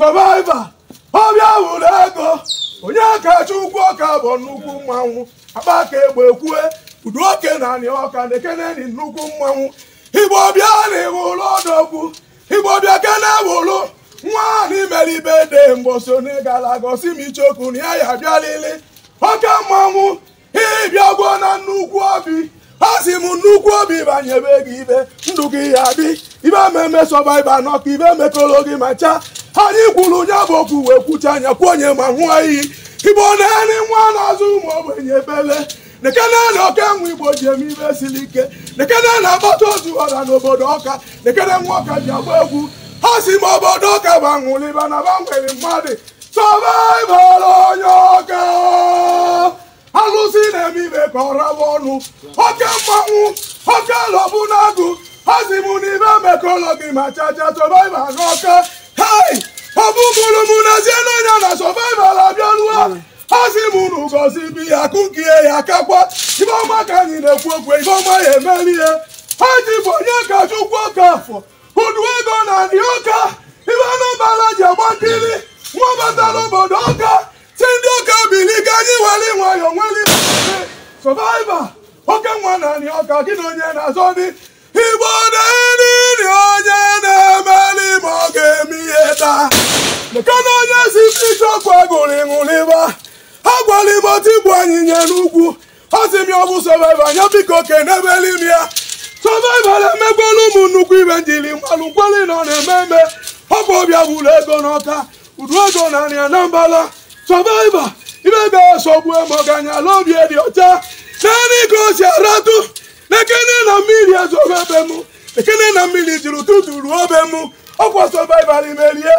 sọvaiva ọbịa wụrụ ego onye kacha ukwu ọka bụ nnukwu mmanwụ akpa ka egbe ekwue udu oke na anị ọka na nnukwu mmanwụ igbo na ịwụlụ ọdọgwu igbo kene wụlụ nwa n'imeribe de onye na ịgala gosi m ichokwu na ya ya abịalili oke mmanwụ ịbịagwo na nnukwu obi ọ sị m nnukwu obi banyebe gị ibe ndụ gị ya bi ibe eme emesọba ibe anọ ka ibe emekọrọ gị ma chaa anyị kwuru onye bụ okwu wee kwucha anya kwuo onye ma nwụọ iyi igbo na-eri nwa na-azụ ụmụ enye ebele nekene na oke nwa igbo ji eme ibe siri ike nekene na agbata otu ọra n'obodo ọka nekene nwa ọka ji agba egwu ha si m obodo ọka banwụliba na nwere mmadụ sọbaịbara onye ọka alụsị na-eme ibe ka ọ ọnụ oke mmanwụ oke lọbụ na osimụn'ibe mekologi ma chacha sọvaiva n'ọka hai ọ bụ mụrụmụ n'ezie n'ọnya na sọvaival abịaruo asị m unu gozi bi ya kụkie ya kakwa ifeọma ka anyị na-ekwu okwu ifeọma ya emerie ha ji bụ onye ka chukwu ọka afọ udu ego na dị ọka ife anụbala ji agba nkiri nwa batara obodo ọka si ndị ọka bili ka anyị were nwayọọ nwere sọvaiva oke nwa na dị ọka gị na onye na-azọ dị igbo na-eri onye na-emeli ma ọ ga-eme ihe taa maka na onye si ọkụ gụrụ ịṅụrịba ha gwara igbo tigbu anyịnya n'ugwu ọ sị m ya ọ bụ sọvaiva anya biko kenebeli m ya sọvaiva na-emegwala ụmụ nnukwu ibe njiri mmanụ nkweli nọ na-eme eme ọ bụ ọbịa buru ego n'ọka udu ego na nri na mbala sọvaiva ibe ga-esogbu ma ọ ga-anyala obi dị ọcha naanị ka o si aratụ na na mmiri ezuogo be m ekene na mmiri jiri ụtụtụ ruo be m ọkwa sọvaival merie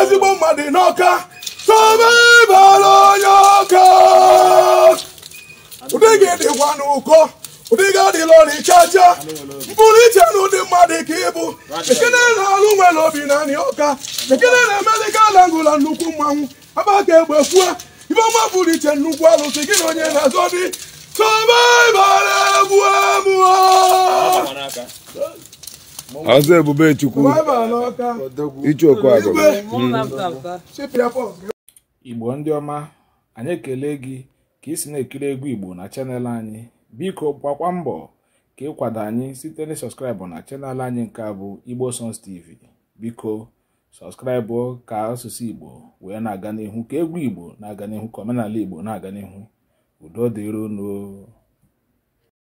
ezigbo mmadụ n'ọka sọvaival onye ọka ụdị gị dịkwa n'ụkọ ụdị gị adịla ọrịchacha mkpụrụ iche na ụdị mmadụ ka ịbụ ekene na-alụ nwere obi na anị ọka ekene na-emeli galangụla nnukwu mmanwụ agbaka egbe kwuo ifeọma bụrụ iche nnukwu alụsị gị na onye na-azọ dị ọzọ ebube chukwu ichu okwu igbo ndi oma anyị ekele gị ka isi si na-ekiri egwu igbo na chanel anyị biko gbakwa mbọ ka ịkwado anyị site na sọskraịbụ na chanel anyị nke abụ igbo sons tv biko sọskraịbụ ka asụsụ igbo wee na-aga n'ihu ka egwu igbo na-aga n'ihu ka omenala igbo na-aga n'ihu udo unu.